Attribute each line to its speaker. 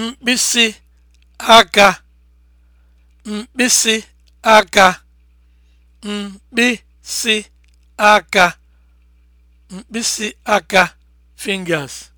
Speaker 1: mkpịsị mkpịsị aka
Speaker 2: mkpịsị aka fingers